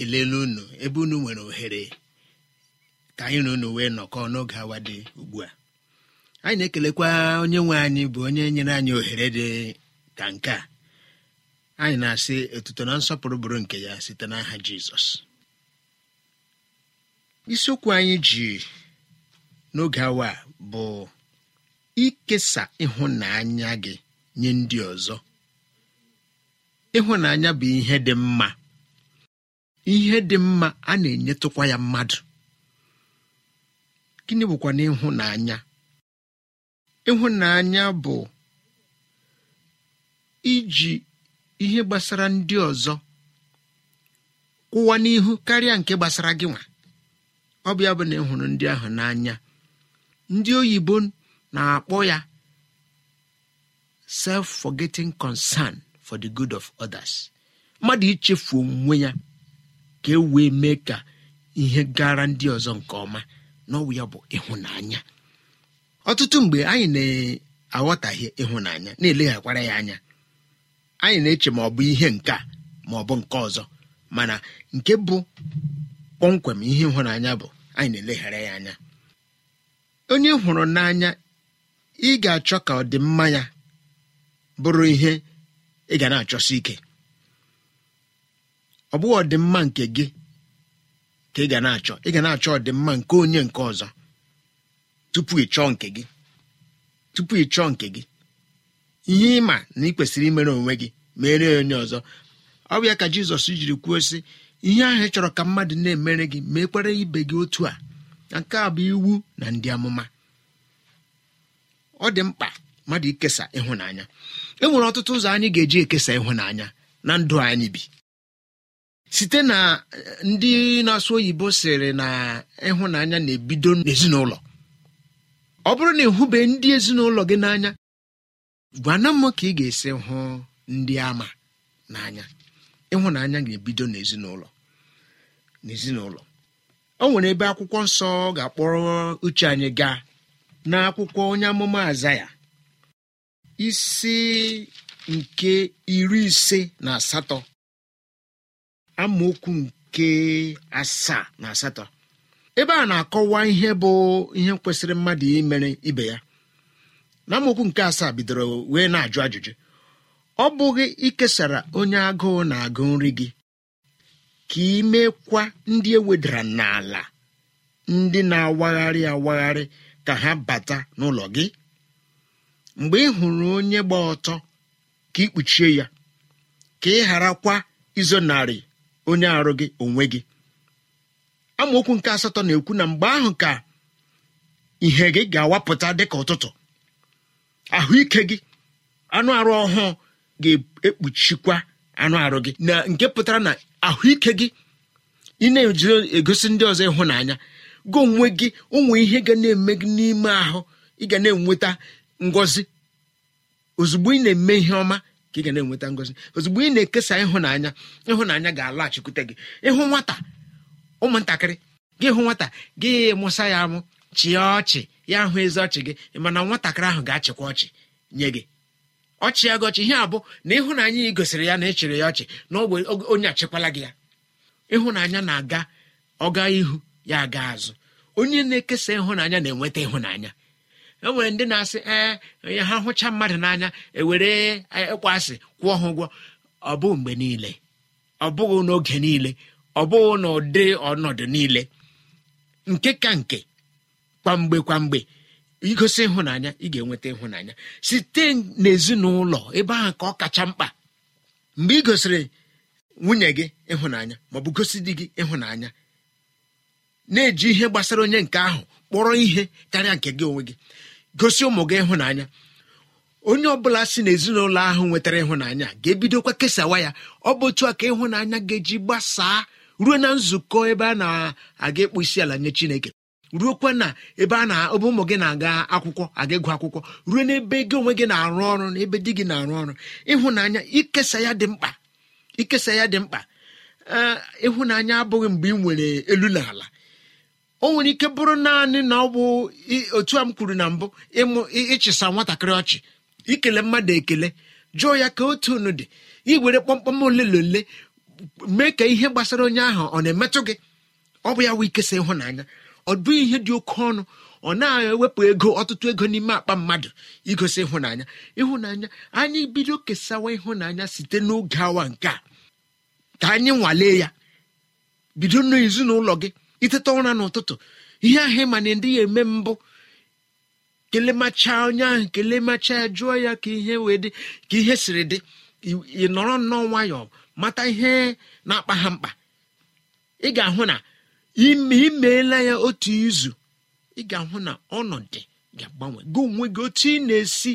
ekelela unu ebe unu nwere ohere ka anyị na unu wee nọkọọ n'oge awa dị ugbu a anyị na-ekelekwa onye nwe anyị bụ onye nyere anyị ohere dị ka nke a anyị na-asị otuto na nsọpụrụ bụrụ nke ya site n'aha jizọs isiokwu anyị ji n'oge awa bụ ikesa ịhụnanya gị nye ndị ọzọ ịhụnanya bụ ihe dị mma ihe dị mma a na-enyetụkwa ya mmadụ gịnị bụkwa na ịhụnanya bụ iji ihe gbasara ndị ọzọ kwụwa n'ihu karịa nke gbasara gị nwa ọ bụ ya bụ na ịhụrụ ndị ahụ n'anya ndị oyibo na-akpọ ya self-forgetting concern for the good of others mmadụ ichefu onwe ya ka e wee mee ka ihe gara ndị ọzọ nke ọma n'ọwụ ya bụ ịhụnanya ọtụtụ mgbe anyị na aghọtaghị ịhụnanya na-eleghakwara ya anya anyị na-eche ma ọ bụ ihe nke a ma ọ bụ nke ọzọ mana nke bụ kpọmkwem ihe ịhụnanya bụ anyị na-eleghara ya anya onye hụrụ n'anya ị ga-achọ ka ọdịmma ya bụrụ ihe ị ga na-achọsi ike ọ bụghị ọdịmma nke gị ka ị ga na-achọ ị ga na-achọ ọdịmma nke onye nke ọzọ tupu ị chọọ nke gị tupu ị chọọ nke gị ihe ịma na ị kwesịrị imere onwe gị mere onye ọzọ ọ bụ ya ka jizọs jiri kwuo sị ihe ahụ ị chọrọ ka mmadụ na-emere gị mekwere ibe gị otu a nke a bụ iwu na ndị amụma ọ dị mkpa mmadụ ikesa ịhụnanya e nwere ọtụtụ ụzọ anyị ga-eji ekesa ịhụnanya na ndụ anyị bi site na eh, ndị na-asụ oyibo sịrị na ịhụnanya na-ebido n'ezinụlọ ọ bụrụ na ịhụbe ndị ezinụlọ gị n'anya gwana m ka ị ga-esi hụ ndị ama n'anya ịhụnanya ga-ebido n'ezinụlọ n'ezinụlọ o nwere ebe akwụkwọ nsọ ga-akpọrọ uche anyị gaa n'akwụkwọ onye amụma aza ya isi nke iri ise na asatọ amaokwu nke asaa na asatọ ebe a na-akọwa ihe bụ ihe kwesịrị mmadụ imere ibe ya na amaokwu nke asaa bidoro wee na-ajụ ajụjụ ọ bụghị ikesara onye agụụ na-agụ nri gị ka ị mekwa ndị ewedara n'ala ndị na-awagharị awagharị ka ha bata n'ụlọ gị mgbe ị hụrụ onye gba ọtọ ka ị kpuchie ya ka ị gharakwa izonarị onye arụ gị onwe gị amaokwu nke asatọ na-ekwu na mgbe ahụ ka ihe gị ga-awapụta dịka ụtụtụ ahụike gị anụ arụ ọhụụ ga-ekpuchikwa anụ arụ gị na nke pụtara na ahụike gị ị na-eji egosi ndị ọzọ ịhụnanya gị onwe gị ụmụ ihe ga na-eme gị n'ime ahụ ị ga na-enweta ngọzi ozugbo ị na-eme ihe ọma ka ị ga na-enweta ngọzi ozugbo ị na-ekesa ịhụnanya ịhụnanya ga-alaghachikwute gị ịhụ nwata ụmụntakịrị gị hụ nwata gị mụsa ya amụ chịa ọchị ya hụ ezi ọchị gị mana nwatakịrị ahụ ga-achịkwa ọchị nye gị ọchị ya gị ọchị ihe abụ na ịhụnanya ị gosiri ya na ị chịrị ya ọchị na ogbe onye achịkwala gị ya ịhụnanya na-aga ọga ihu ya aga azụ onye na-ekesa ịhụnanya na-enweta ịhụnanya enwere ndị na-asị ee ha hụcha mmadụ n'anya ewere ịkpọ e, e, asị kwụọ ha ụgwọ ọ bụghị mgbe niile ọ bụghị n'oge niile ọ bụghị n'ụdị ọnọdụ niile nke ka nke kwamgbe kwamgbe igosi ịhụnanya ị ga-enweta ịhụnanya site n'ezinụlọ ebe ahụ ka ọ kacha mkpa mgbe ị gosiri nwunye gị ịhụnanya maọbụ gosi di gị ịhụnanya na-eji ihe gbasara onye nke ahụ kpọrọ ihe karịa nke gị onwe gị gosi ụmụ gị ịhụnanya onye ọbụla si n'ezinụlọ ahụ nwetara ịhụnanya ga-ebidokwa kesawa ya ọ bụ otu a ka ịhụnanya ga-eji gbasaa ruo na nzukọ ebe a na-aga ịkpụ isi ala nye chineke ruokwa na ebe a na ebe ụmụ gị na-aga akwụkwọ aga ịgụ akwụkwọ ruo n'ebe gị onwe gị na-arụ ọrụ na ebe di gị na-arụ ọrụ ịhụnanya ikesa ya dị mkpa ikesa ya dị mkpa ịhụnanya abụghị mgbe ị nwere elu na ala o nwere ike bụrụ naanị na ọ bụ otu a m kwuru na mbụ ịchịsa nwatakịrị ọchị ikele mmadụ ekele jụọ ya ka otu unu dị iwere kpọmkpọm ole na ole mee ka ihe gbasara onye ahụ ọ na-emetụ gị ọ bụ ya wee ikesa ịhụnanya ọ bụ ihe dị oke ọnụ ọ na-ewepụ ego ọtụtụ ego n'ime akpa mmadụ igosi ịhụnanya ịhụnanya anyị bido kesawa ịhụnanya site n'oge awa nke a ka anyị nwalee ya bido n'ezinụlọ gị iteta ụra n'ụtụtụ ihe ahụ ma na ndị ya eme mbụ kelemacha onye ahụ kelemacha ya jụọ ya ka ihe wee dị ka ihe siri dị ị nọrọ nnọọ nwayọọ mata ihe na-akpa ha mkpa ị ga-ahụ na imeela ya otu izu ị ga-ahụ na ọnọdụ ga-agbanwe gị onwe gị otu ị na-esi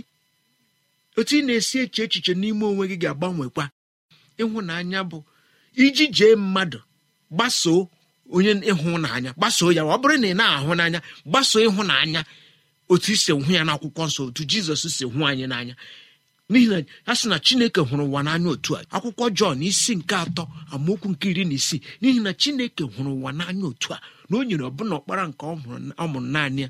otu ị na-esi eche echiche n'ime onwe gị ga-agbanwekwa ịhụnanya bụ iji jee mmadụ gbasoo onye ịhụnanya gbasoo ya ọ bụrụ na ị na-ahụ n'anya gbasoo ịhụnanya otu isi hụ ya n'akwụkwọ nsọ otu jizọs si hụ anyị n'anya n'ihi na ya sị na chineke hụrụ ụwa n'anya otu a akwụkwọ jọn isi nke atọ amaokwu nke iri na isii n'ihi na chineke hụrụ ụwa n'anya otu a na o nyere ọbụna ọkpara nke ọ mụrụ naanị ya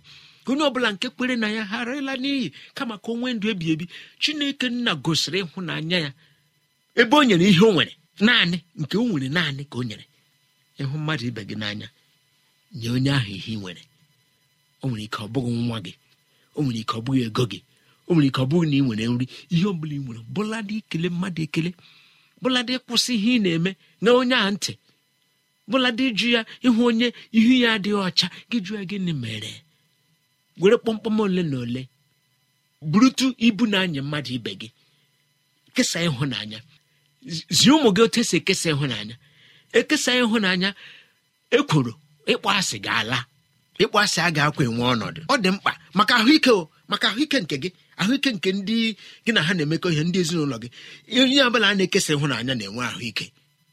onye ọbụla nke kwere na ya harịla n'iyi kama ka o nwee ndụ ebi ebi chineke nna gosiri ịhụnanya ya ebe o nyere ihe o nwere naanị nke o nwere naanị ka o nyere ịhụ mmadụ ibe gị n'anya nye onye ahụ ihe ị nwere o nwere ike ọ bụghị nwa gị o nwere ike ọ bụghị ego gị o nwere ike ọ bụghị na ị nwere nri ihe ọ ị nwere bụladị ikele mmadụ ekele bụladị ịkwụsị ihe ị na-eme na onye a ntị bụladị ịjụ ya ịhụ onye ihu ya adịghị ọcha gị jụọ gịnị mere were kpọmkpọm ole na ole burutu ibu na-anya mmadụ ibe gị kesa ịhụnanya zie ụmụ gị otu esi ekesa ịhụnanya ekesa ịhụnanya ekworo ịkpọ asị ga-ala ịkpọasị a ga-akwa enwe ọnọdụ ọ dị mkpa maka ahụike maka ahụike nke gị ahụike nke ndị gị na ha na-emekọ ihe ndị ezinụlọ gị onye ọbụla a na-ekesa ịhụnanya na-enwe ahụike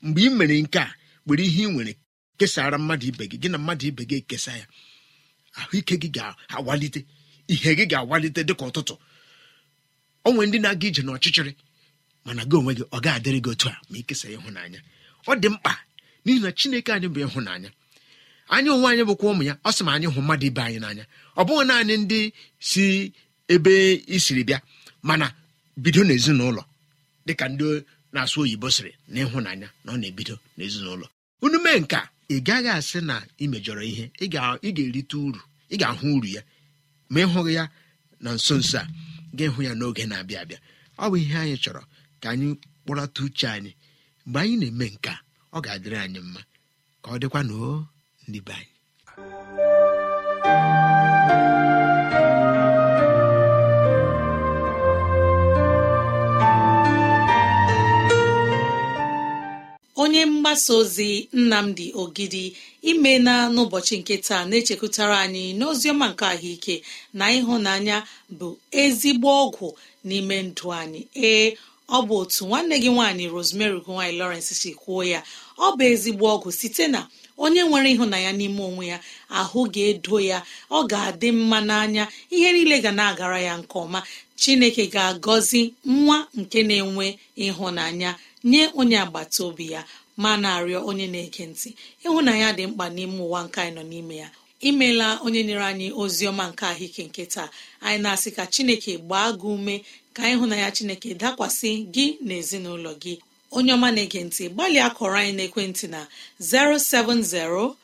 mgbe ị mere nke a were ihe ị nwere kesara mmadụ ibe gị gị na mmadụ ibe gị ekesa ya ahụike gị ga-awalite ihe gị ga-awalite dịka ụtụtụ ọ nwere ndị na-aga ije n'ọchịchịrị mana gị onwe gị ọ ga-adịrị gị otu a ma ikesa ịhụnanya ọ dị mkpa n'ihi na chineke anyị bụ ịhụnanya anyị onwe anyị bụkwa ụmụ ya ọ sị ma anyị hụ mmadụ ibe anyị n'anya ọ bụghị naanị ndị si ebe isiri bịa mana bido n'ezinụlọ dịka ndị na-asụ oyibo sịrị na ịhụnanya na ọ na-ebido n'ezinụlọ unu mee nke ị gaghị asị na ị mejọrọ ihe ị ga-erite uru ị ga-ahụ uru ya ma ị hụghị ya na nso nso a ga ịhụ ya n'oge na-abịa abịa ọ bụ ihe anyị chọrọ ka anyị kpọrọta uche anyị mgbe anyị na-eme nke a ọ ga-adịrị anyị mma ka ọ dịkwa na o ndị onye mgbasa ozi nnamdi ogidi ime na n'ụbọchị nke taa na-echekwutara anyị n'oziọma nke ahụike na ịhụnanya bụ ezigbo ọgwụ n'ime ndụ anyị ee ọ bụ otu nwanne gị nwaanyị rosemary gowany lawrence si kwuo ya ọ bụ ezigbo ọgwụ site na onye nwere ịhụnanya n'ime onwe ya ahụ ga-edo ya ọ ga-adị mma n'anya ihe niile ga na-agara ya nke ọma chineke ga-agọzi nwa nke na-enwe ịhụnanya nye onye agbata obi ya ma na-arịọ onye na-ege ntị ịhụnanya dị mkpa n'ime ụwa nke anyị nọ n'ime ya imela onye nyere anyị ozi ọma nke ahụike nke taa anyị na-asị ka chineke gbaa gị ume ka ịhụnanya chineke dakwasị gị na ezinụlọ gị onye ọma na-ege ntị gbalịa kọrọ anyị n'ekwentị na 07063637224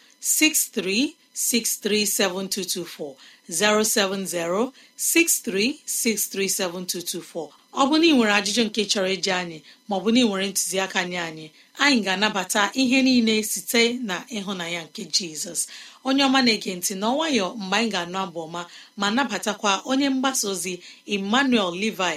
7224. ọ bụ na ị nwere ajụjụ nke chọrọ iji anyị maọbụ na ị nwere ntụziaka nye anyị anyị ga-anabata ihe niile site na ịhụnanya nke jizọs onye ọma na-ege ntị na ọnwayọ mgbe anyị ga-anụ abụ ọma ma nabatakwa onye mgbasa ozi emmanuel levi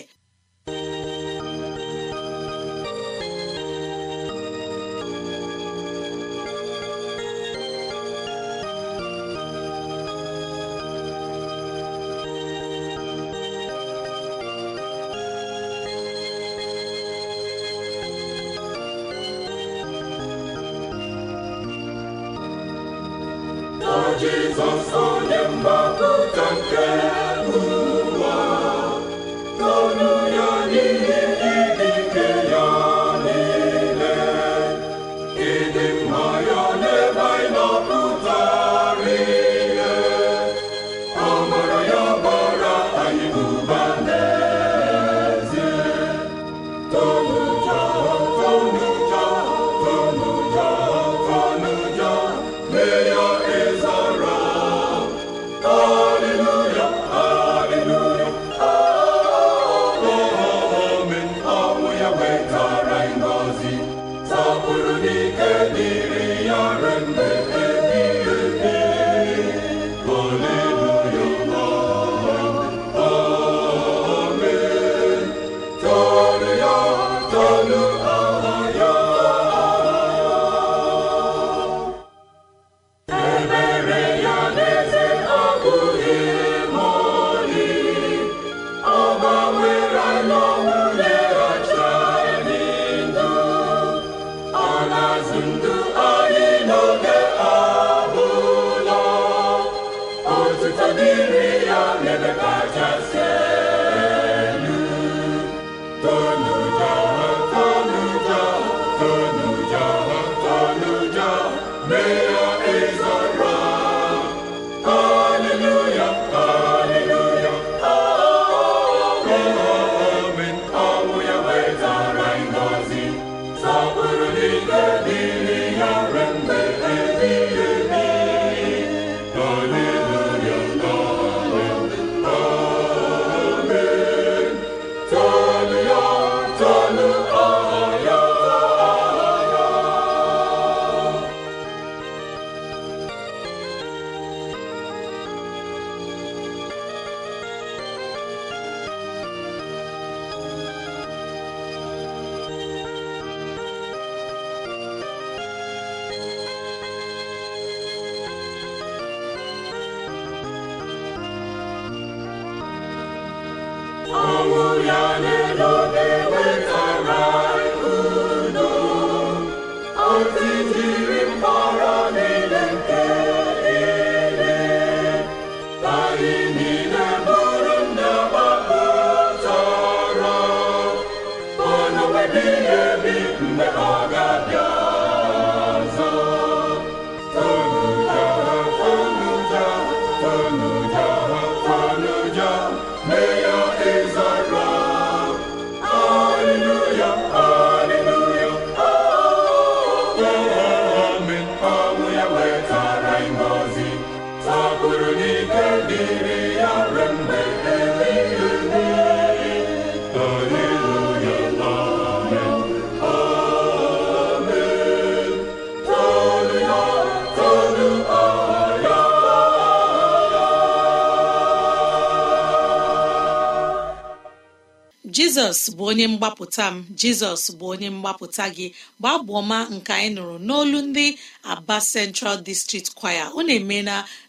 jizọs bụ onye mgbapụta m jizọs bụ onye mgbapụta gị gbaa bụ ọma nke anyị nụrụ n'olu ndị aba central district choir na-eme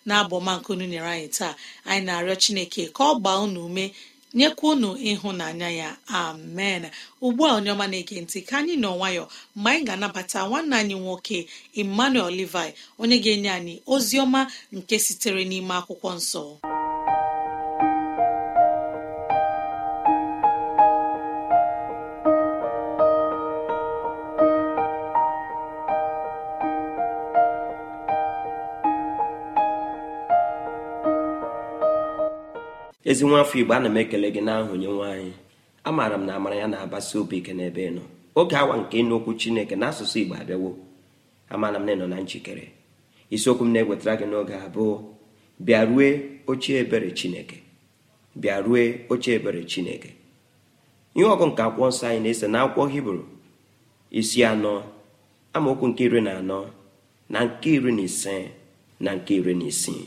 na abụọma nke unu nyere anyị taa anyị na-arịọ chineke ka ọ gbaa unu ume nyekwa unu ịhụnanya ya amen ugbu a onye ọma na-ege ntị ka anyị nọ nwayọ mgbe anyị ga-anabata nwanne anyị nwoke emmanuel levi onye ga-enye anyị ozi ọma nke sitere n'ime akwụkwọ nsọ ezi nwa afọ igbo ana m ekele gị n'aha onye nwe anyị amaara m na amara ya na-abasi obi ike n'ebe nọ oge awa nke ịnụ okwu chineke na asụsụ igbo abịawo amaara m na ịnọ na njikere isiokwu m na-ewetara gị n'oge abụọ bịa rue oche ebere chineke bịa rue oche ebere chineke ihe ọgụ nke akwụkwọ nsọ anyị na-ese na akwụkwọ hibru isi anọ amaokwu nke iri na anọ na nke iri na ise na nke iri na isii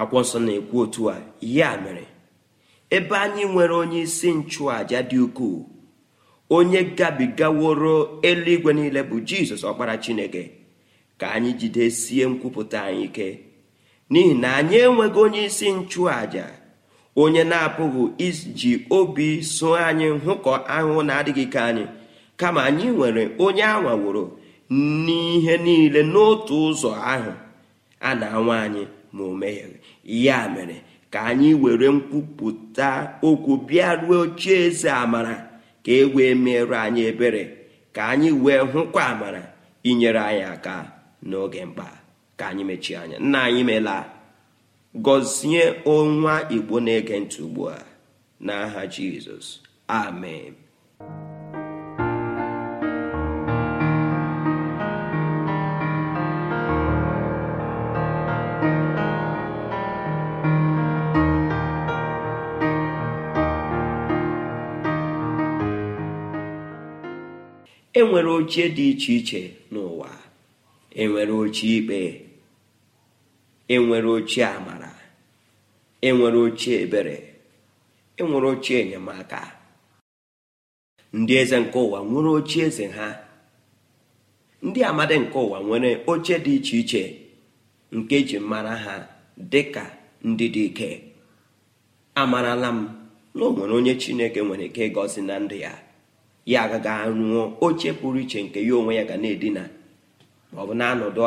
akwụkwọ nsọ na-ekwu otu a ya mere ebe anyị nwere onye isi nchụàja dị ukwuu onye gabigaworo eluigwe niile bụ jizọs ọkpara chineke ka anyị jidesie nkwupụta anyị ike n'ihi na anyị enweghị onye isi nchụàja onye na-apụghị iji obi so anyị hụkọ ahụhụ na-adịghị ike anyị kama anyị nwere onye anwaworo n'ihe niile n'otu ụzọ ahụ a na-anwa anyị ma o megheghị ya mere ka anyị were nkwupụta okwu bịa ruo ochie eze amara ka e wee anyị ebere ka anyị wee hụkwa amara inyere anyị aka n'oge mkpa ka anyị mechie anya nna anyị meela gọzie ọnwa igbo na-ege ntị ugbu a n'aha jizọs amen enwere ochie dị iche iche n'ụwa enwere ochie ikpe enwere ochie amara enwere ochie ebere enwere ochie enyemaka ndị eze nke ụwa nwere ochie eze ha ndị amadi nke ụwa nwere oche dị iche iche nke ji mara ha dị ka ndị dị ike amarala m na o nwere onye chineke nwere ike ịgọzi na ndụ ya ya agaghị anwụọ oche pụrụ iche nke ya onwe ya ga na-edina ma ọ bụ na-anọdụ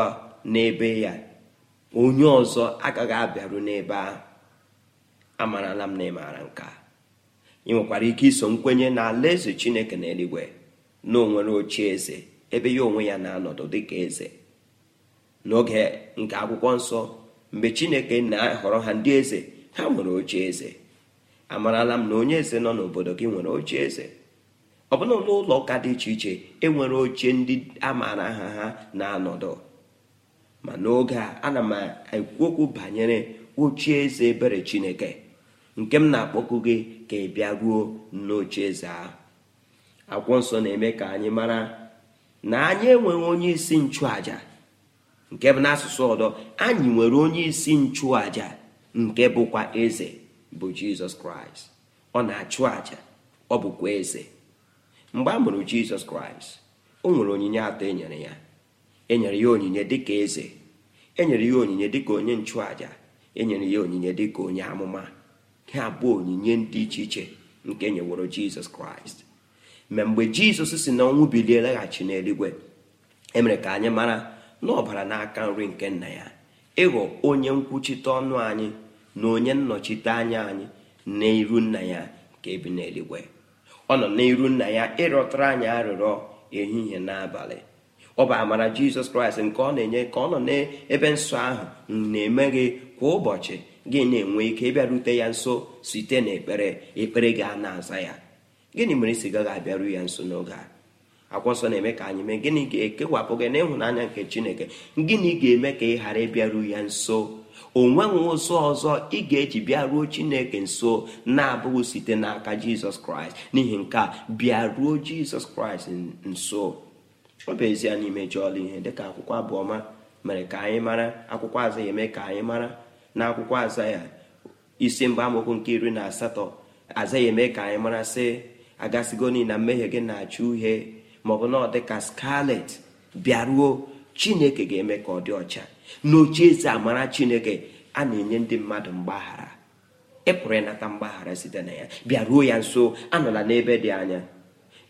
n'ebe ya onye ọzọ agaghị abịaru n'ebe ahụ amarala m na ịmaara nke a ị nwekwara ike iso nkwenye na alaeze chineke na eluigwe na onwere oche eze ebe ya onwe ya na-anọdụ dịka eze n'oge nke akwụkwọ nsọ mgbe chineke na-ahọrọ ha ndị eze ha nwere oche eze amarala m na onye eze nọ n'obodo gị nwere oche eze ọ bụla n'ụlọ ụka dị iche iche enwere oche ndị a maara aha ha na-anọdụ ma n'oge a ana m ekwu okwu banyere oche eze ebere chineke nke m na akpọkụ gị ka ị bịa ruo n'oche eze ahụ akwụkwọ nsọ na-eme ka anyị mara na anyị enweghị onye isi nchụaja nke bụ n'asụsụ ọdọ anyị nwere onye isi nchụaja nke bụkwa eze bụ jizọs kraịst ọ na-achụ aja ọ bụkwa eze mgbe a mụrụ jizọs kraịst o nwere onyinye atọ enyere ya enyere ya onyinye dịka eze enyere ya onyinye dịka onye nchụàja enyere ya onyinye dịka onye amụma ha abụọ onyinye dị iche iche nke enyeworo nyeworo jizọs kraịst ma mgbe jizọs si na ọnwụ bilie laghachi n'eluigwe emere ka anyị mara na ọbara n'aka nri nke nna ya ịghọ onye nkwuchite ọnụ anyị na onye nnọchite anya anyị na iru nna ya nke bi n'eluigwe ọ nọ n'iru nna ya ịrọtara anyị arịrịọ ehihie n'abalị ọ bụ amara jizọs kraịst nke ọ na-enye ka ọ nọ n'ebe nsọ ahụ na-eme gị kwa ụbọchị gị na-enwe ike ịbịarute ya nso site n'ekpere ekpere gị a na-aza ya gịnị mere isi gaghị abịaru ya nso n'oge a akwọsọ na-eme ka anyị mee gịnị ga-ekewapụ gị n'ịhụnanya nke chineke gịnị ga-eme ka ị ghara ịbịaru ya nso onwenwe ụzọ ọzọ ị ga-eji bịaruo chineke nso na-abụghị site n'aka jizọs kraịst n'ihi nke a bịaruo jizọs kraịst nso ọ bụ ezie na imejọọla ihe dịka akwụkwọ abụọma mere ka anyị mara akwụkwọ aza ya eme ka anyị mara na akwụkwọ aza ya isi mba amụkwu nke iri na asatọ aza ya eme ka anyị mara sị agasigo na mmehie gị na-acha uhie maọbụ na ọ dịka skalet bịaruo chineke ga-eme ka ọ dị ọcha n'ochieze amara chineke a na-enye ndị mmadụ mgbaghara ị pụrụ ịnata mgbaghara site na ya bịa ruo ya nso anọla n'ebe dị anya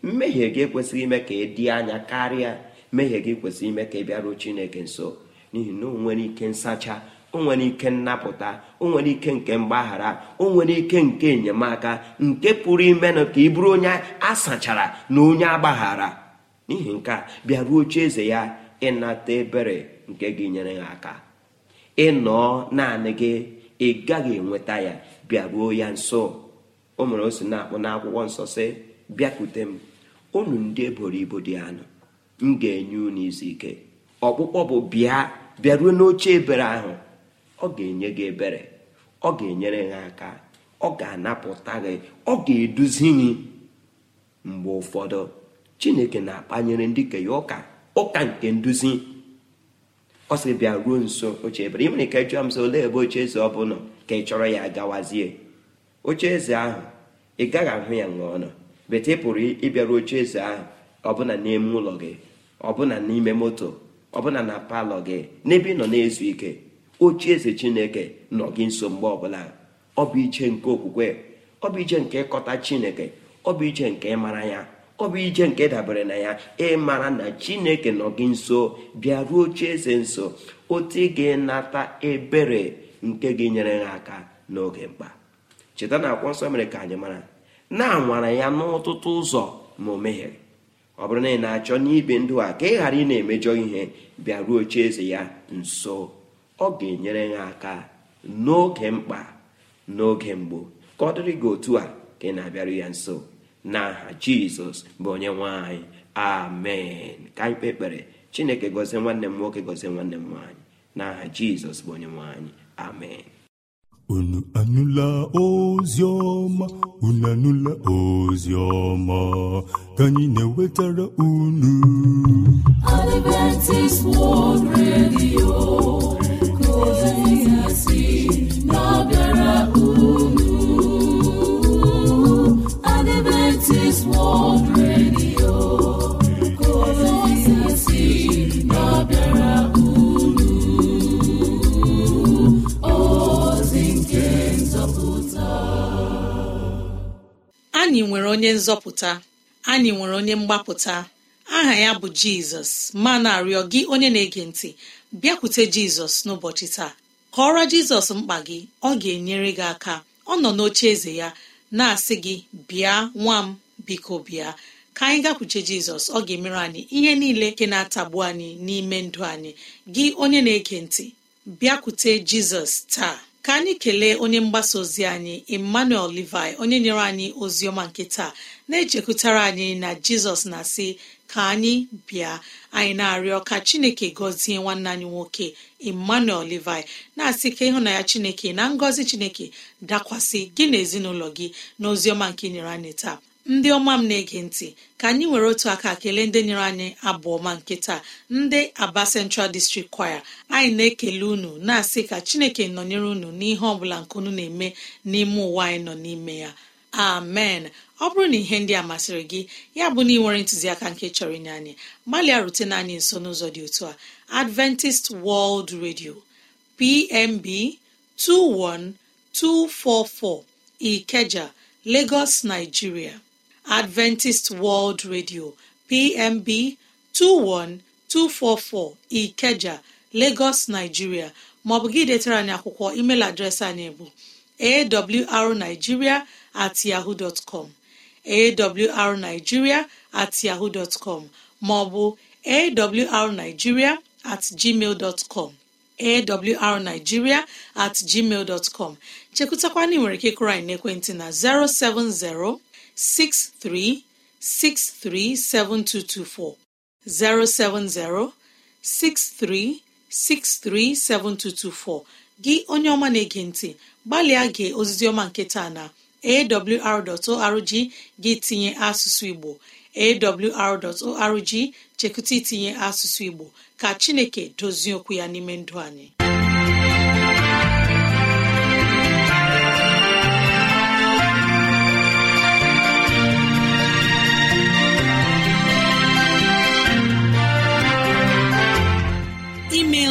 mmehie gị ekwesịghị ime ka ị dị anya karịa mmehie gị kwesịrị ime ka ị bịaruo chineke nso n'ihi na o nwere ike nsacha onwere nwere ike nnapụta onwere nwere ike nke mgbaghara onwere nwere ike nke enyemaka nke pụrụ ime ka ị bụrụ onye a sachara na onye agbaghara n'ihi nke a bịaruo oche ya ịnata ebere nke ga-enyere ha aka ịnọọ naanị gị ị gaghị enweta ya bịaruo ya nso o mere o si na-akpọ n'akwụkwọ nsọ si bịakwute m unu ndị eboro ibo dị anụ m ga-enye unu izu ike ọkpụkpọ bụ bịa bịaruo n'oche ebere ahụ ọ ga-enye gị ebere ọ ga-enyere ha aka ọ ga-anapụta gị ọ ga-eduzi gị mgbe ụfọdụ chineke na-akpanyere ndị ka ya ụka ụka nke nduzi ọ bịa ruo nso oche ebere ị nwere ike m sị olee ebe oche eze ọ bụla ka ị chọrọ ya gawazie oche eze ahụ ị gaghị ahụ ya ṅụọ nọ bete ị pụrụ ịbịaru oche eze ahụ ọbụna n'ime ụlọ gị ọbụna n'ime moto ọbụna na palọ gị n'ebe ị nọ na-ezu ike oche eze chineke nọ gị nso mgbe ọbụla ah. ọ bụ iche nke okwukwe ọ bụ iche nke ịkọta chineke ọ bụ iche nke ịmara ya ọ bụ ije nke dabere na ya ịmara na chineke nọ gị nso bịaruo oche eze nso otu ga-enata ebere nke gị nyere ha aka n'oge mkpa cheta na akwụkwọ nsọ mere ka anyị mara na-anwara ya n'ọtụtụ ụzọ ma o mehiere ọ bụrụ na ị na-achọ n'ibe ndụ a ka ị ghara ị na-emejọ ihe bịaruo oche eze ya nso ọ ga-enyere ha aka n'oge mkpa n'oge mgbo ka ọ dịrị gị otu a ka ị na-abịaru ya nso n'aha jizọs bụ onye nwanyị amen ka anyị kpe ekpere chineke gọzie nwanne m nwoke gọzie nwanne m nwaanyị n'aha jizọs bụ onye nwanyị amen unu anụla ozi ọma unu anụla ozi ọma ka anyị na-ewetara unu Adventist World Radio anyị nwere onye nzọpụta anyị nwere onye mgbapụta aha ya bụ jizọs ma na-arịọ gị onye na-ege ntị bịakwute jizọs n'ụbọchị taa kọọrọ jizọs mkpa gị ọ ga-enyere gị aka ọ nọ n'oche eze ya na-asị gị bịa nwa m biko bịa ka anyị gakwuche jizọs ọ ga-emere anyị ihe niile nke na-atagbu anyị n'ime ndụ anyị gị onye na-ege ntị bịakwute jizọs taa ka anyị kelee onye mgbasa ozi anyị emmanuel levi onye nyere anyị ozi ọma nke taa na-echekụtara anyị na jizọs na-asị ka anyị bịa anyị na-arịọ ka chineke gọzie nwanne anyị nwoke emmanuel levi na-asị ka ịhụnanya chineke na ngọzi chineke dakwasị gị na ezinụlọ gị na ozi ọma nke nyere anyị taa ndị ọma m na-ege ntị ka anyị nwere otu aka kelee ndị nyere anyị abụ ọma nke taa ndị aba Central District Choir anyị na-ekele unu na-asị ka Chineke nọnyere unu n'ihe ọ bụla nke unu na-eme n'ime ụwa anyị nọ n'ime ya amen ọ bụrụ na ihe ndị a masịrị gị ya bụ na ị nwere ntụziaka nke chọrọ inye anyị gbalịa rutena anyị nso n'ụzọ dị otu a Adventist World Radio PMB 21244 Ikeja Lagos Nigeria adventist world radio pmb 21244 ikeja lagos nigeria maọbụ gị detara anyị akwụkwọ email adreesị anyị bụ awrnigeria at yahoo dot at maọbụ awrnigeria at gmail dot com at gmail chekwụtakwana nwere ike kụrụ anyị n'ekwentị na 070 63637224 070 gị onye ọma na-ege ntị gbalịa gee ozizioma ọma nke taa na awr.org gị tinye asụsụ Igbo awr.org chekụta itinye asụsụ Igbo ka Chineke dozie okwu ya n'ime ndụ anyị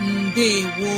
ndewo